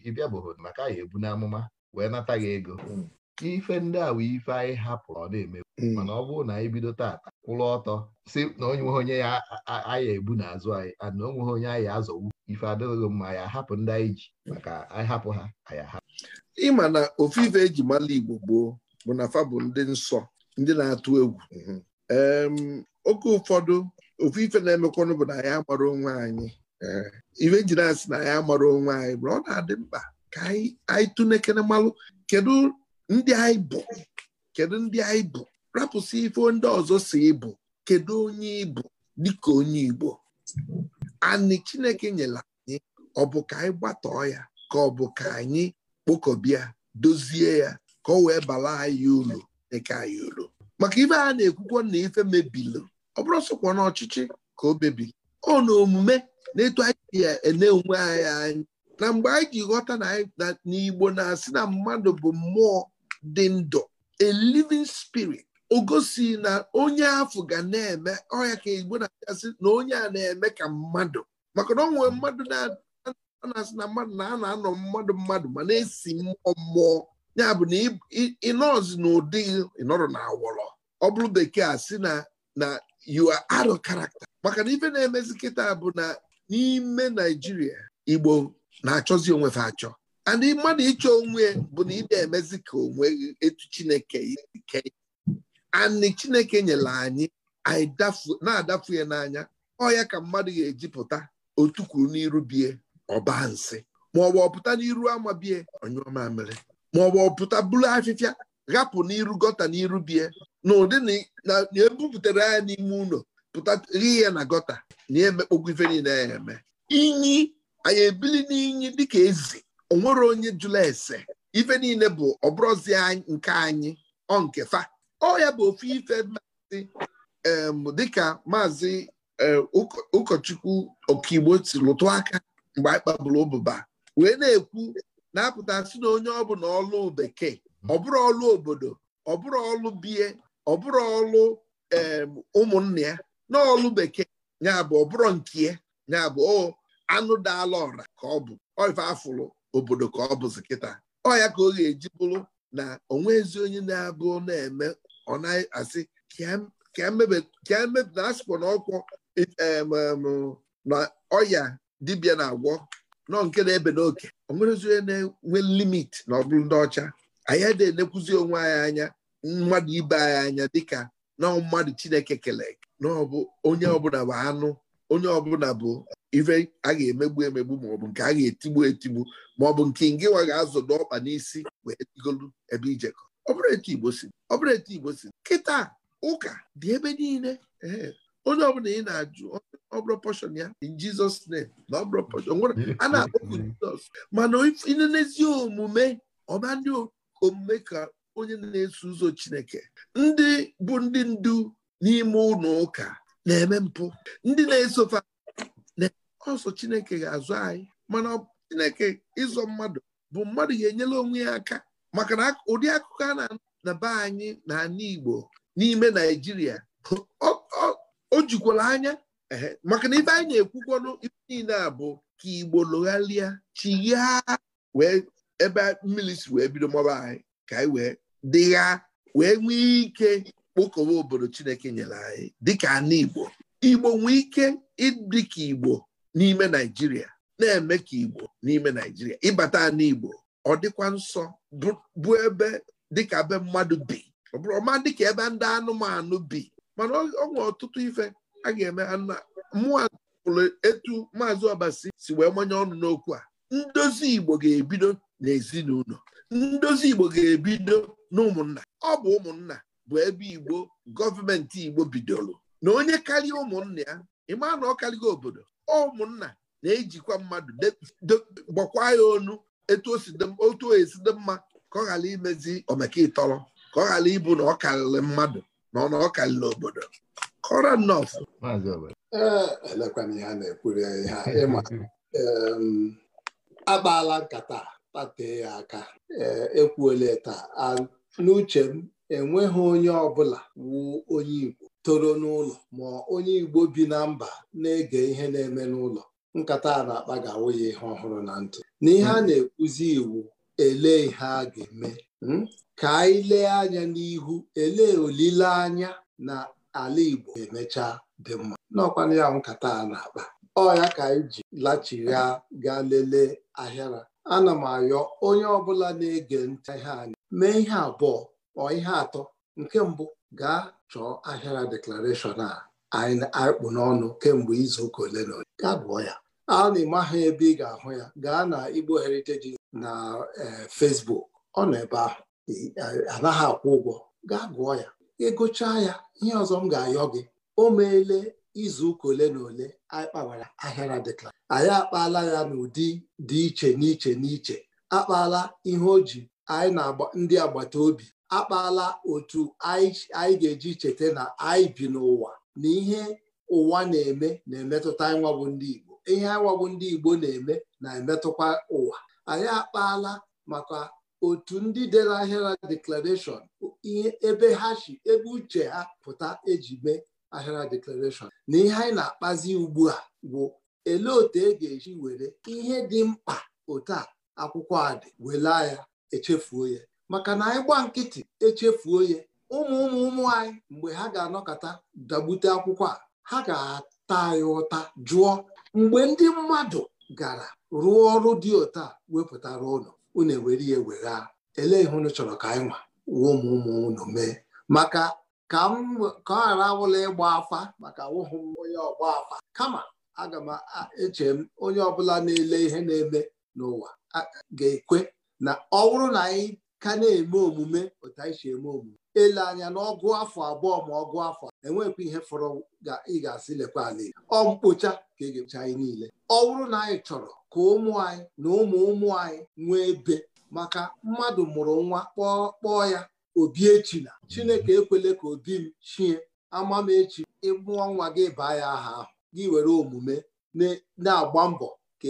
ịbịa bụrụ maka ya ebu n'amụma wee nata gị ego hmm. ife ndị a ife anyị hapụrụ ọ na-eme hmm. mana ọ bụrụ na anyị bido taata kwụrụ ọtọ si na onye onye ya anyị ebu n'azụ anyị na o nweghị onye anyị azọwu ife adịghị mma anyị ahapụ ndị anyị ji maka anyị hapụ ha anyị ahapụ ịma na ofufe eji mala Igbo gboo bụ na fa bụ ndị nsọ ndị na-atụ egwu mhm. oke ụfọdụ ofu ife na-emekwanụ bụ na anyị amara onwe anyị eh, ife e ji na-asị na anyị amara onwe anyị bụ ọ na-adị mkpa ka anyị tụnekere malụ kedu ndị anyị bụ kedu ndị anyị bụ rapụsị ife ndị ọzọ si ịbụ kedu onye ịbụ dịka onye Igbo anyị Chineke nyere anyị ọ bụ ka anyị gbatọọ ya ka ọ bụ ka anyị kpokọbịa dozie ya ka ọ wee bala anyị uru dịka anyị uru maka ibe a na-ekwukwo na ife mebilu ọ bụrụ sokwa na ọchịchị ka o mebiri ọ na omume na-etu anyị ene onwe anyị na mgbe anyị ji ghọta na n'Igbo na-asị na mmadụ bụ mmụọ dị ndụ a living spirit o na onye afọ ga na-eme ọhịa ka igbo na-asị na onye a na-eme ka mmadụ maka na ọ nwere mmadụ na-asị na mmadụ na a na-anọ mmadụ mmadụ ma na-esi mmụọ mmụọ ya bụ na ịnọzi n'ụdị ụdị ịnọrọ na awọrọ ọ bụrụ bekee a sị na na you are karakta maka na ife na-emezi kịta bụ na n'ime Naijiria igbo na-achọzi onwefe achọ ndị mmadụ ịchọ onwe bụ na na emezi ka onwe etu chineke ike anị chineke nyere anyị na-adafu ya n'anya ọya ka mmadụ ga-eji pụta otukwuru n'iru bie ọba nsị maọbụ ọpụta n'iru ama bie onyụọmamịrị maọbụ ọpụta buru afịfịa ghapụ n'iru gọta n'iru bie na ụdị na ebupụtara ya n'ime ụlọ pụta ghe ya na gọta na emekpogwu ife niile ya eme inyi anyị ebili n'inyi dịka ezi onwere onye jụla ese ife niile bụ ọbụrụzi nke anyị ọ nke fa ọ ya bụ ofu ife maazị dịka maazị ụkọchukwu ọkaigbo si lụtụ aka mgbe anyị kpaburu ụbụba wee na-ekwu na-apụta sị na onye ọ bụla ọlụ bekee bụrụ ọlụ obodo bụrụ ọlụ bie bụrụ ọlụ ụmụnne ya na ọlụ bekee ya bụ ọbụrụ nke ya bụ oh, anụ daala ọra ka ọ bụ ife afụlụ obodo ka ọ bụzi kịta ọ ya ka ọ ga-eji bụrụ na onwe ezi onye na-abụ na-eme ọ naghị asị ka emepụta asịkwa na ọkwọ na ọya dibịa na-agwọ nọ nke na-ebe n'oke onwere onye na-enwe limit na ọ bụrụ ndị ọcha anyị adịghị enekwuzi onwe anyị anya mmadụ ibe anyị anya dịka na mmadụ Chineke kele na ọ bụ onye ọbụla bụ anụ onye ọbụla bụ ife a ga-emegbu emegbu ma bụ nke a ga-etigbu etigbu maọbụ nke ngịwa ga-azọdo ọkpa n'isi wee digolu ebe ijekọ ọ bụrụ etu Igbo si ọ bụrụ Igbo kịta ụka dị ebe niile ee onye ọbụla ị na-ajụ ọ bụrụ pọshọn ya in Jizọs na ọ pọshọn nwere a na-akpọpụ Jizọs mana n'ezi omume ọba ndị omume ka onye na-eso ụzọ Chineke ndị bụ ndị ndu n'ime ụlọ ụka na-eme mpụ ndị na-esofa ọsọ chineke ga-azụ anyị mana chineke ịzọ mmadụ bụ mmadụ ga-enyela onwe ya aka maka na ụdị akụkọ a na be anyị na igbo n'ime naijiria o jikwala anya maka na ibe anyị na-ekwukwanụ ibe niile a bụ ka igbo lụgharịa chighaa wee ebe mmiri si wee bido mọba anyị ka anyị wee dịgha wee nwee ike kpokọwa obodo chineke nyere anyị dịka ana igbo igbo nwee ike ịdị ka igbo n'ime naijiria na-eme ka igbo n'ime naijiria ịbata n'igbo ọ dịkwa nsọ bụ ebe dịka be mmadụ bi ọ bụrụ ọma dịka ebe ndị anụmanụ bi mana ọ nwere ọtụtụ ife a ga-eme mmụọ pụrụ etu maazị ọbasi si wee manye ọnụ n'okwu a ndozi igbo ga-ebido n'ezinụlọ ndozi igbo ga-ebido n'ụmụnna ọ bụ ụmụnna bụ ebe igbo gọọmenti igbo bidoro na onye karịa ụmụnna ya ịma na ọ karịgo obodo ụmụnna na-ejikwa mmadụ gbọkwa ya onu otu esi dị mma ka ọ ghara imezi omekitọrọ ka ọ ghara ịbụ na ọ karịrị mmadụ na ọ na ọ karịrị obodo kọrọ nọf elekwana na ịma nkata tatee ya aka eh, ekwuole taa n'uche m enweghị onye ọbụla wuo onye Igbo toro n'ụlọ ma onye Igbo bi na mba na-ege ihe na-eme n'ụlọ nkata a na-akpa ga-awụ ya ihe ọhụrụ na ntị n'ihe a hmm. na-ekwuzi iwu elee ihe a ga-eme hmm? ka anyị lee anya n'ihu elee olileanya na ala Igbo emechaa dị mma n'ọkwana ya nkata a na-akpa ọ ya ka anyị ji lachigha gaa lelee ahịara ana m ayọ onye ọbụla na-ege ntị ihe anya mee ihe abụọ ọ ihe atọ nke mbụ gaa chọọ ahịara deklarashọn a anyị akpụ n'ọnụ kemgbe izuụka ole na ole gaa gụọ ya a na-eme ahụ ebe ị ga-ahụ ya gaa na Igbo Heritage na e, Facebook ọ nọ ebe ahụ e, anaghị akwụ ụgwọ gaa gụọ ya ịgụchaa ya ihe ọzọ m ga-ayọ gị o meele izuụka ole na ole anyị kpawara ahịara deklara anyị akpaala ya n'ụdị dị iche n'iche n'iche akpaala ihe o ji anyị na ndị agbata obi akpala otu anyị ga-eji cheta na anyị bi n'ụwa na ihe ụwa na-eme na-emetụta anyị ndị Igbo ihe anyị ndị Igbo na-eme na-emetụkwa ụwa anyị akpaala maka otu ndị dere ahịara deklarashọn ihe ebe ha si ebe uche ha pụta eji mee ahịara deklarashọn na ihe anyị na-akpazi ugbu a bụ elee otu e ga-eji were ihe dị mkpa otu a akwụkwọ a dị wela ya echefuo ya maka na anyị gba nkịtị echefuo ya ụmụ ụmụ ụmụ anyị mgbe ha ga-anọkọta dagbute akwụkwọ a ha ga-ata anyị ụta jụọ mgbe ndị mmadụ gara rụọ ọrụ dị ụta wepụtara ụlọ unu ewere ya wegha elee ihe unu chọrọ ka anyị nwa ụmụ ụmụ ụnụ mee maka ka m ka ọ ghara awụla ịgba afa maka awụghị m onye ọgba afa kama aga m eche m onye ọbụla na-ele ihe na-eme n'ụwa ga-ekwe na ọ bụrụ na anyị ka na-eme omume otu anyị si eme omume ele anya na ọgụ afọ abụọ ma ọgụ afọ enwekwa ihe fọrọ ị ga-asị lekwa ala ọ mkpocha ka ị ga-echa anyị niile ọ bụrụ na anyị chọrọ ka ụmụ anyị na ụmụ ụmụ anyị nwee ebe maka mmadụ mụrụ nwa kpọọ ya obi echi na chineke ekwele ka obi m chie ama echi ịmụọ nwa gị baa ya aha ahụ gị were omume na-agba mbọ ka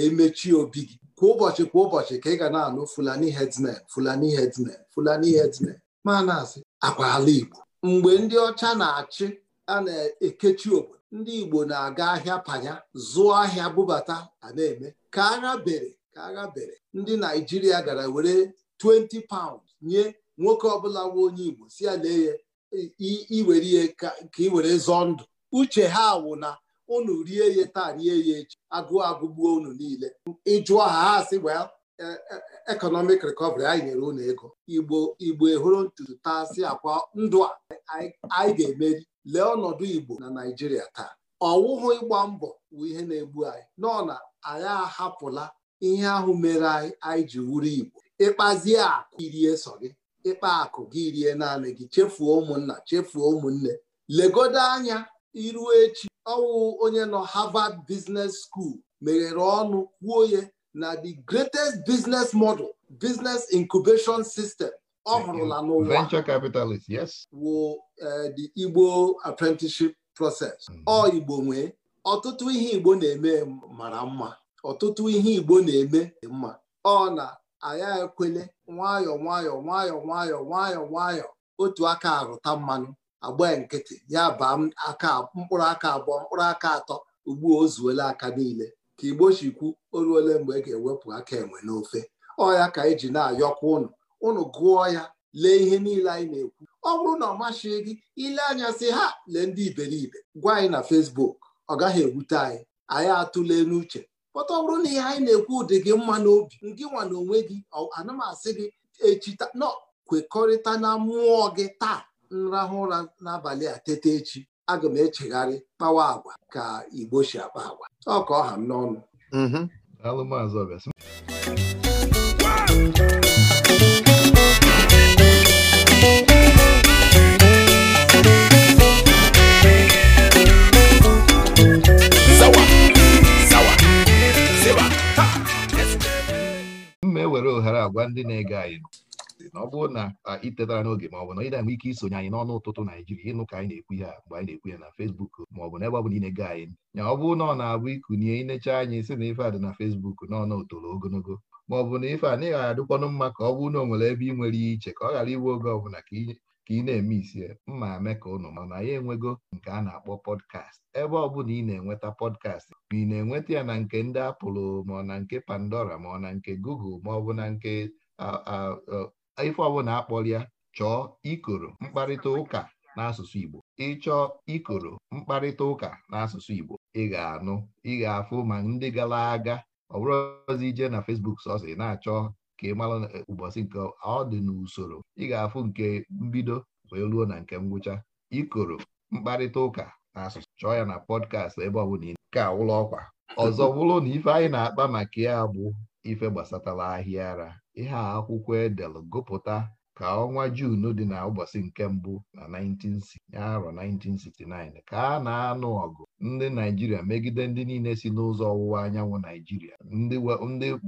emechie e obi gị kwa ụbọchị kwa ụbọchị ka ị ga na-anụ fulani headsmen fulani headsmen fulani headsmen ma na-asị akwa ala igbo mgbe ndị ọcha na-achị a na-ekechi obodo ndị igbo na-aga ahịa panya zụọ ahịa bubata, a na-eme ka agha bere ka agha bere ndị naijiria gara were 20 pound nye nwoke ọbụla nwa onye igbo si ya lee ya iwere ihe ka ị were zọọ ndụ uche ha wụ na unu rie ya taa rie ya echi agụụ agụgbuo unu niile ịjụọ ha asị well e, e, economic recovery anyị nyere unu ego igbo igbo ehuru ntutu taa si akwa ndụ a anyị ga-emeri lee ọnọdụ igbo na naijiria taa ọwụhụ ịgba mbọ bụ ihe na-egbu anyị nọ na anyị ahapụla ihe ahụ mere anyị anyị ji wuru igbo ịkpazie akụ irie sọ gị ịkpa akụ gị rie naanị gị chefuo ụmụnna chefuo ụmụnne legodo anya iru echi ọwụ onye nọ Harvard Business School meghere ọnụ kwuo na the greatest business model business incubation system ọ hụrụla n'ụwa venture capitalists. wụ eh, the Igbo apprenticeship process hmm. ọ Igbo nwee ọtụtụ ihe Igbo na-eme mara mma ọtụtụ ihe Igbo na-eme mma ọ na aya ekwele nwayọọ nwayọọ nwayọọ nwayọọ nwayọọ nwayọọ otu aka arụta mmanụ agba nkịtị ya baa aka mkpụrụ aka abụọ mkpụrụ aka atọ ugbu o zuola aka niile ka igbo chikwu oruole mgbe e ga-ewepụ aka enwe n'ofe ọya ka anyị e ji na-ayọkwa ụnụ ụnụ gụọ ya lee ihe niile anyị na-ekwu ọ bụrụ na ọ masịghị gị ile anya sị ha lee ndị iberibe gwa anyị na fesbuk ọ gaghị ewute anyị anyị atụle n'uche pọta ọ bụrụ na ihe anyị na-ekwu dị gị mma n'obi ngị nwa na onwe gị anamasị gị echita nọ kwekọrịta na mmụọ gị taa nrahụ ụra n'abalị a tete echi aga m echegharị kpawa agwa ka igbo si akpa agwa ọka ọha m n'ọnụ mm-hmm. m ma ewere ohere agwa ndị na-ege anyị podcastị na ọ bụrụ na itetara n'oge ma ọ bụ na ị ike isonye anyị n'ọnụ ụtụtụ Naijiria ịnụ ka anyị na-ekwu ya mgbe anyị na-ekwu ya na Facebook ma ọ bụ n'ebe ọ bụla na anyị ya ọ bụrụ na ọ na-abụ ikunye inecha anyị si na ife a dị na fesbuk n'ọnụ otolo ogologo ma ọ bụ na ife a na ịghara adịkwanụ mma ka ọ bụrụ na ọ nwere ebe ị nwere iche ka ọ ghara iwe oge ọbụla ka ị na-eme isie mma eme ka ụnụ mana ya enwego nke a na-akpọ pọdkast ebe ọ bụla ị na-enweta podcast ma ị na-enweta ya na nke ndị apụlụ ma ọ na nke Pandora ma ọ na nke Google ma ọ bụ na nke ife ọbụla ya, chọọ ikoro mkparịta ụka n'asụsụ Igbo ịchọọ ikoro mkparịta ụka n'asụsụ Igbo ị ga-anụ ị ga-afụ ma ndị gara aga ọ bụrụ ije na Facebook sọsị na-achọ ka ị mara ụbọchị nke ọ dị n'usoro ị ga-afụ nke mbido wee ruo na nke ngwụcha ikoro mkparịta ụka n'asụsụ chọọ ya na pọdkast ebe ọ Nke ka ụlọ ọkwa ọzọ bụrụ na ife anyị na-akpa maka ya bụ ife gbasatara ahịa ara ihe a akwụkwọ edel gụpụta ka ọnwa Jun dị na ụbọchị nke mbụ na 1969 ka a na-anụ ọgụ ndị Naijiria megide ndị niile si n'ụzọ ọwụwa anyanwụ Naijiria ndị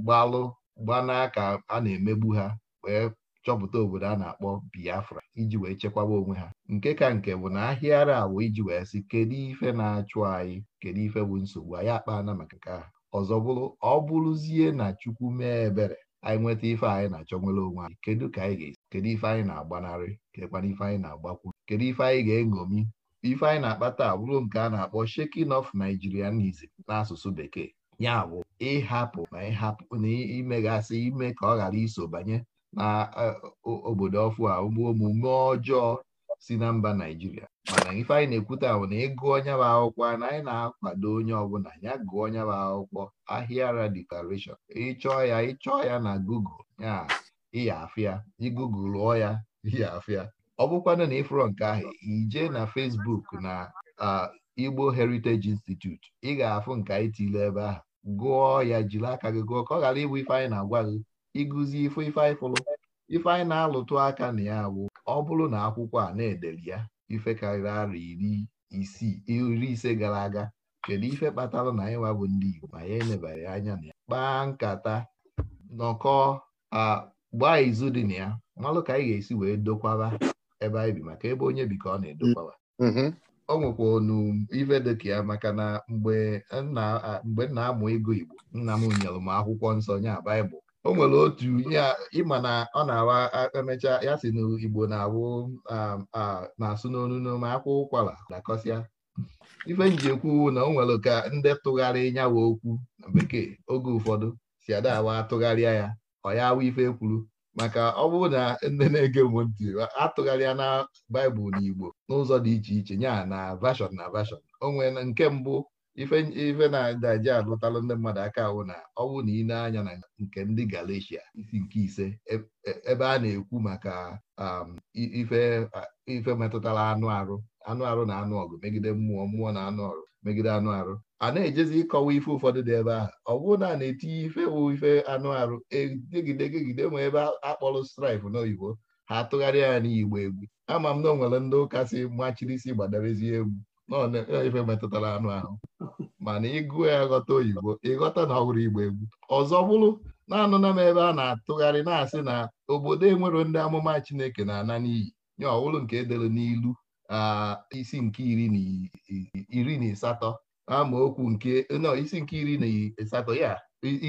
gbalụ gbanaka a na-emegbu ha wee chọpụta obodo a na-akpọ Biafra iji wee chekwaba onwe ha nke ka nke bụ na ahịara awụ iji wee sị kedu ife na-achụ anyị kedu ife bụ nsogbu anyị akpa na maka nke ahụ ọzọ bụrụ ọ bụrụzie na Chukwu mee ebere anyị nweta ife anyị na-achọ nwere onwe anyị kedu ka anyị ga-esi kedu ife anyị na-agbanarị kekwana ife anyị na-agbakwu kedu ife anyị ga-eṅomi ife anyị na-akpata bụrụ nke a na-akpọ shaking of Nigerianism n'asụsụ bekee ya bụ ịhapụ na ịhapụ na imegasị ime ka ọ ghara iso banye na e, obodo ọfụ a ụmụ omume ọjọọ si na mba Naijiria mana ife anyị na-ekwute bụ na ịgụ onye bụ akwụkwọ na anyị na-akwado onye ọbụla ya gụọ onye bụ akwụkwọ ahịara declaration ịchọọ ya ịchọọ ya na google ya ịya afịa igugul lụọ ya ịya afịa ọ bụkwanụ na ịfụrọ nke ahụ ije na Facebook na Igbo Heritage Institute ị ga-afụ nke anyị tile ebe ahụ gụọ ya jiri aka gị gụọ ka ọ ghara ịbụ ife anyị na-agwa gị ịgụzi ife ife anyị fụrụ ife anyị na-alụtụ aka na ya bụ ọ bụrụ na akwụkwọ a na-edeli ya ife karịrị arọ iri isii iri ise gara aga kedu ife kpatara na anyị wabụ ndị Igbo ma ya elebara anya na ya kpaa nkata nọkọ agba izu dị na ya malụ ka anyị ga-esi wee dokwara ebe anyị bi maka ebe onye bi ka ọ na-edokwawa ọ mm-hmm. nwekwa onu ife ya maka na mgbe m na-amụ ego Igbo nna m nyere m akwụkwọ nsọ nya Baịbụl o nwere otu ihe ịma na ọ na-awa emecha ya si n'igbo na-awụ na-asụ n'onu n'ome akwa ụkwara dakọsịa ife njikwu na o nwere ka ndị tụgharị nyawa okwu na bekee oge ụfọdụ si ada awa atụgharịa ya ọ ya awa ife kwuru maka ọ bụrụ na ndị na-ege m ntị atụgharịa na baịbụl na igbo n'ụzọ dị iche iche ya na vashọn na vashọn o nke mbụ ife ife na-daji alụtalụ ndị mmadụ aka ahụ na ọnwụ na ile anya na nke ndị Galatia isi nke ise e, e, ebe a na-ekwu maka um, ife ife metụtara anụ arụ anụ arụ na anụ ọgụ megide mmụọ mmụọ na anụ ọrụ megide anụ arụ a na-ejezi ịkọwa ife ụfọdụ dị ebe ahụ ọ bụrụ na a na-etinye ife ife anụ arụ egidegegide ma ebe akpọrọ strife n'oyibo ha tụgharịa ya n'igbo egwu ama m na o nwere ndị ụka si machiri isi gbadarazie egwu E, ife metụtara anụ ahụ mana ịgụ ya ghọta oyibo ịghọta na ọ igbo egwu ọzọ bụrụ na-anụna m ebe a na-atụgharị na-asị na obodo enwero ndị amụma Chineke na-ana n'iyi nye ọwụlụ nke edere n'ilu isi nke iri na ịsatọ amaokwu nke isi nke iri na ịsatọ ya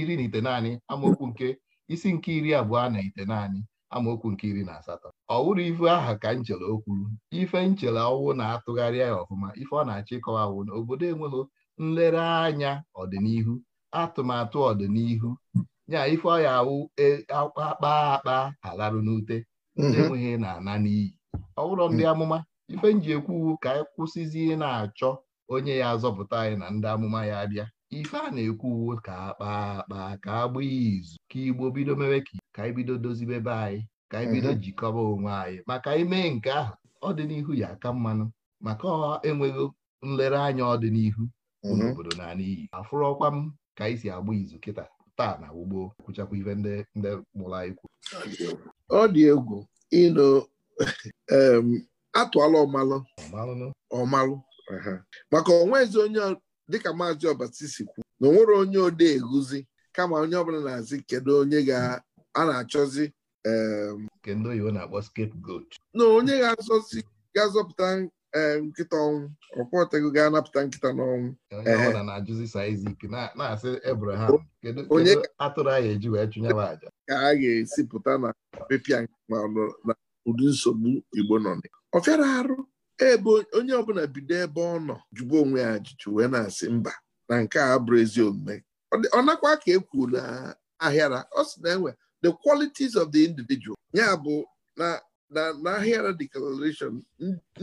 iri na ite naanị amaokwu nke isi nke iri abụọ na ite naanị amaokwu nke iri na asatọ ọ wụrụ ife aha ka nchele o kwuru ife nchere ọwụ na-atụgharịa ya ọfụma ife ọ na-achọ ịkọwawụ na obodo enweghị nlereanya ọdịnihu atụmatụ ọdịnihu ya ife ọya awụ e, akpa akpa alarụ n'ute mhm. enweghị na-ana n'iyi ọ bụrụ ndị mhm. amụma ife nji ekwu ka anyị kwụsịzi na-achọ onye ya azọpụta anyị na ndị amụma ya abịa ife a na ekwu uwe ka akpa akpa ka agba izu ka igbo bido mewe ka anyị bido dozibe be anyị ka anyị mhm. jikọba onwe anyị maka ime nke ahụ ọdịnihu ya aka mmanụ maka enweghị enweghị anya ọdịnihu mhm. obodo na n'iyi afụrọkwa m ka anyị si agba izu kịta taa na ugbo kwụchakwa ife ndị mụrụ anyị kwu ọ dị egwu ịnụ atụala ọmalụ ọmalụ maka onwe onye dịka maazị ọbasi si kwuo. na onwere onye odee eguzi kama onye ọbụla na-azị kedu onye ga a na-achọzi kedu oyibo na-akpọ scapegoat na onye ga-azọzi ga-azọpụta nkịta ọnwụ ọkwọtego ga-anapụta nkịta n'ọnwụ onye eh. atụrụ anyị eji wee chụnye aja ka a ga-esi pụta na pepịa ma na ụdị nsogbu Igbo nọ ọfịara arụ ebe onye ọbụla bido ebe ọ nọ jụba onwe ya ajụjụ wee na-asị mba na nke a abụrụ ezi omume ọ nakwa ka e kwuru na ahịara ọ sị na enwe the qualities of the individual ya bụ na na ahịara declaration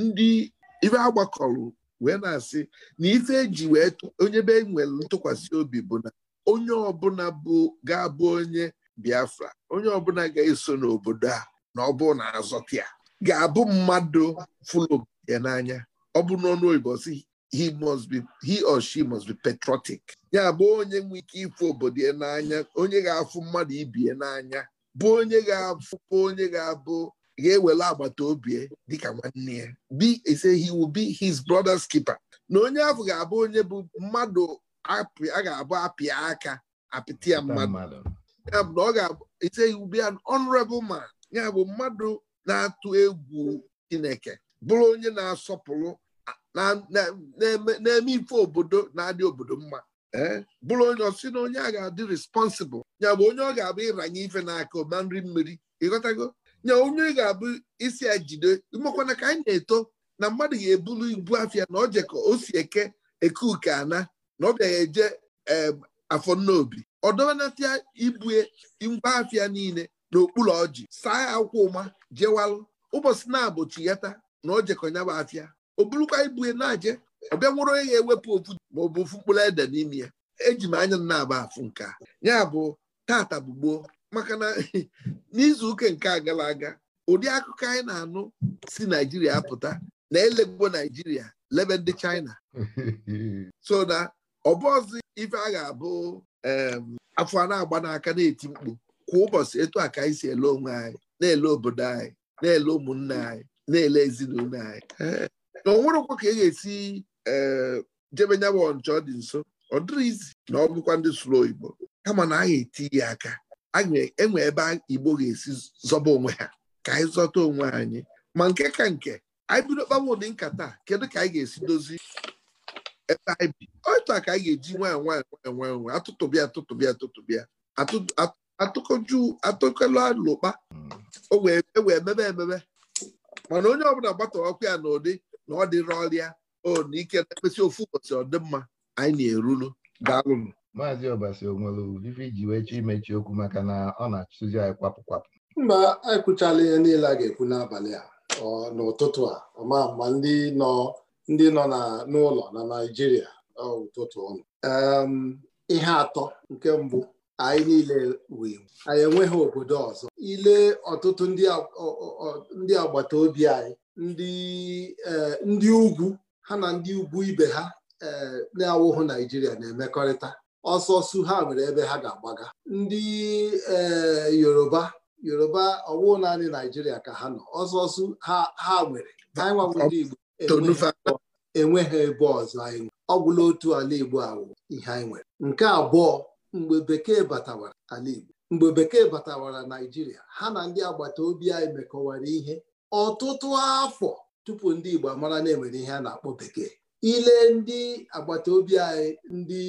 ndị ibe agbakọrọ wee na-asị na ife eji wee onye be nwere ntụkwasị obi bụ na onye ọbụla bụ ga-abụ onye Biafra onye ọbụla ga-eso n'obodo a na ọ bụ na azọta ga-abụ mmadụ fụlụ ya n'anya ọ bụ n'ọnụ oyibo si he must be he or she must be patriotic ya bụ onye nwe ike ịfụ obodo ya n'anya onye ga-afụ mmadụ ibi ya n'anya bụ onye ga-afụ onye ga-abụ ga-ewere agbata obi ya dịka nwanne ya Bi ise he will be his brother's keeper na onye ahụ ga-abụ onye bụ mmadụ a ga-abụ apịa aka apịtịa ya mmadụ ya bụ na ọ ga-abụ ise he will be an honorable man ya bụ mmadụ na-atụ egwu Chineke bụrụ onye na-asọpụrụ na-eme ife obodo na-adị obodo mma eh, bụrụ onye ọsị na onye a ga-adị responsible ya bụ onye ọ ga-abụ ịranye ife n'aka ma nri mmiri ịghọtago nya onye ga-abụ isi ejide jide ka anyị na-eto na mmadụ ga ebulu ibu afịa na ojeka ka o si eke eke uke ana na ọ bịaghị eje afọ obi ọ ibue ngwa afịa niile n'okpuru ọjị saa ya akwụkwọ ụma jewalụ ụbọchị na-abụchi ya taa na o jekọnyaba afia o burukwa ibu ya na-aje ọbịa nwụrụ onye ya ewepụ ofu ma ọ bụ ofu mkpụrụ ede n'ime ya eji m anya na-aba afụ nke a ya bụ tata bụ maka na n'izu ụka nke a gara aga ụdị akụkọ anyị na-anụ si naijiria apụta na elegbo naijiria lebe ndị China so na ọbọzi ife a ga-abụ afọ a na-agba n'aka na-eti mkpu kwa ụbọchị etu a ka anyị si ele onwe anyị na-ele obodo anyị na-ele ụmụnne anyị na-ele ezinụlọ anyị na ọ nwerekwa ka e ga-esi eh, jebe nyabụ ọncha ọ dị nso ọ dịrị izi na ọ bụkwa ndị sụrụ oyibo kama na anyị eti ya aka enwe ebe Igbo ga-esi zọba onwe ha ka anyị zọta onwe anyị ma nke ka nke anyị bido kpaba ụdị nkata kedu ka anyị ga-esi dozie ebe anyị bi otu a ka anyị ga-eji nwanyị nwanyị nwanyị nwanyị nwanyị atụtụbịa atụtụbịa atụtụbịa atụkọju atụkọlụ alụkpa hmm. o wee e emebe emebe mana onye ọbụla gbata ọkụ ya n'ụdị ụdị na ọ dịrị ọrịa o na ike na-ekpesị ofu ụbọchị ọdịmma anyị na-erulu daalụnụ maazị ọbasi onwere ji wee chọọ imechi okwu maka na ọ na-achụzi anyị kwapụ kwapụ mba anyị ihe niile a ga-ekwu n'abalị a n'ụtụtụ a ọma ma ndị nọ ndị nọ n'ụlọ na Naịjirịa ụtụtụ ọnụ ihe atọ nke mbụ anyị niile wee anyị enweghị obodo ọzọ ile ọtụtụ ndị agbata obi anyị e, ndị ugwu ha na ndị ugwu ibe ha e, na-awụhụ Naijiria na-emekọrịta ọsọsọ ha nwere ebe ha ga-agbaga ndị e, Yoruba Yoruba ọwụ naanị Naijiria ka ha nọ ọsọsọ ha nwere ndị Igbo enweghị ebe ọzọ anyị ọ gwụla otu ala Igbo awụ ihe anyị nwere nke abụọ mgbe bekee batawara ala Igbo mgbe bekee batawara Naijiria ha na ndị agbata obi anyị mekọwara ihe ọtụtụ afọ tupu ndị Igbo amara na-enwere ihe a na-akpọ bekee ile ndị agbata obi anyị ndị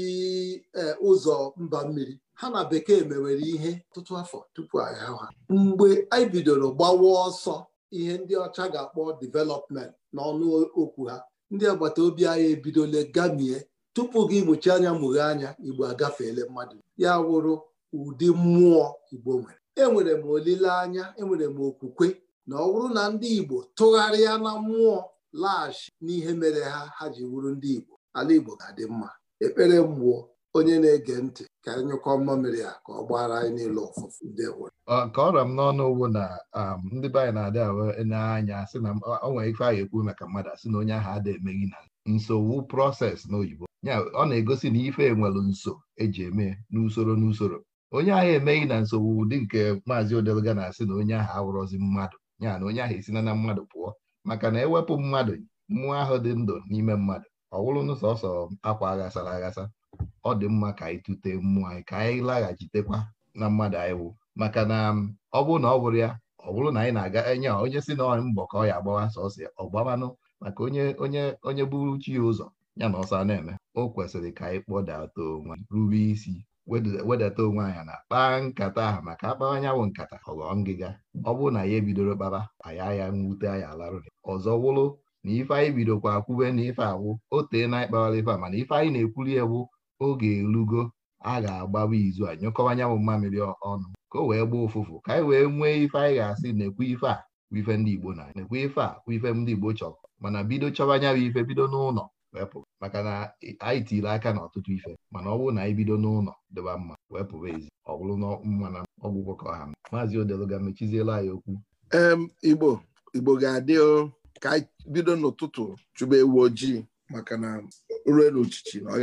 e, ụzọ mba mmiri ha na bekee mewere ihe ọtụtụ afọ tupu agha ha mgbe anyị bidoro gbawa ọsọ ihe ndị ọcha ga-akpọ divelopment n'ọnụ okwu ha ndị agbata obi anyị ebidola gamie tupu gị mụchi anya mụghee anya igbo agafeela mmadụ ya wụrụ ụdị mmụọ igbo nwere enwere m olileanya enwere m okwukwe na ọ bụrụ na ndị igbo tụgharịa na mmụọ laghachi n'ihe mere ha ha ji wụrụ ndị igbo ala igbo ga-adị mma ekpere mmụọ onye na-ege ntị ka anyị nyụkọ mmamịrị a ka ọ gbara anyị niile ọfụfụ ndị nwere nke ọra m n'ọnụ ugbo na um, ndị be anyị na-adị anya sị na o nwere ife anyị ekwu maka mmadụ asị na onye ahụ adịghị emeghi na nsogbu prọses n'oyibo ya ọ na-egosi na ife nwere nso eji eme n'usoro n'usoro onye ahụ emeghị na nsogbu ụdị nke maazị odelga na-asị na onye ahụ awụrọzi mmadụ ya na onye ahụ esina na mmadụ pụọ maka na ewepụ mmadụ mmụọ ahụ dị ndụ n'ime mmadụ ọ wụrụ n'ụsọsọ akwa aghasara aghasa ọ dị mma ka anyị tute mmụọ anyị ka anyị laghachitekwa na mmadụ anyị wụ maka na um, ọ bụrụ na ọ bụrụ ya ọ bụrụ na anyị na-aga enye onye si na ọrị mbọ ka ọ ya agbawa sọsọ ọgbamanụ maka onye onye onye buru chi ya ụzọ ya na ọsọ na-eme o kwesịrị ka anyị kpọdata onwe rube isi wedata onwe anyị na kpaa nkata ahụ maka akpawa anyanwụ nkata ọghọọ ngịga ọ bụrụ na ya ebidoro kpaba anyị ya nwute anyị alarụ ọzọ wụrụ na ife anyị bidokwa akwụbe na ife awụ o tee na ịkpawara ife a mana ife anyị na-ekwuli ewu oge erugo a ga-agbawa izu a nyụkọwa anyanwụ mmamịrị ọnụ ka o wee gbaa ụfụfụ ka anyị wee nwee ife anyị ga-asị na-ekwu ife a bụ ife ndị Igbo na na-ekwu ife a ife ndị Igbo chọrọ mana bido chọwa anyanwụ ife bido n'ụlọ wepụ maka na anyị tiiri aka n'ọtụtụ ife mana ọ bụrụ na anyị bido n'ụlọ dịba mma wee pụba ezi ọ bụrụ na mma na ọgwụgwọ ka ọha maazị odeluga mechiziela anyị okwu igbo ga-adị ka anyị bido n'ụtụtụ chụba ewu ojii maka na ure n'uchichi ọ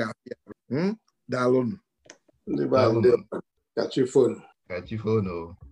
ga-adị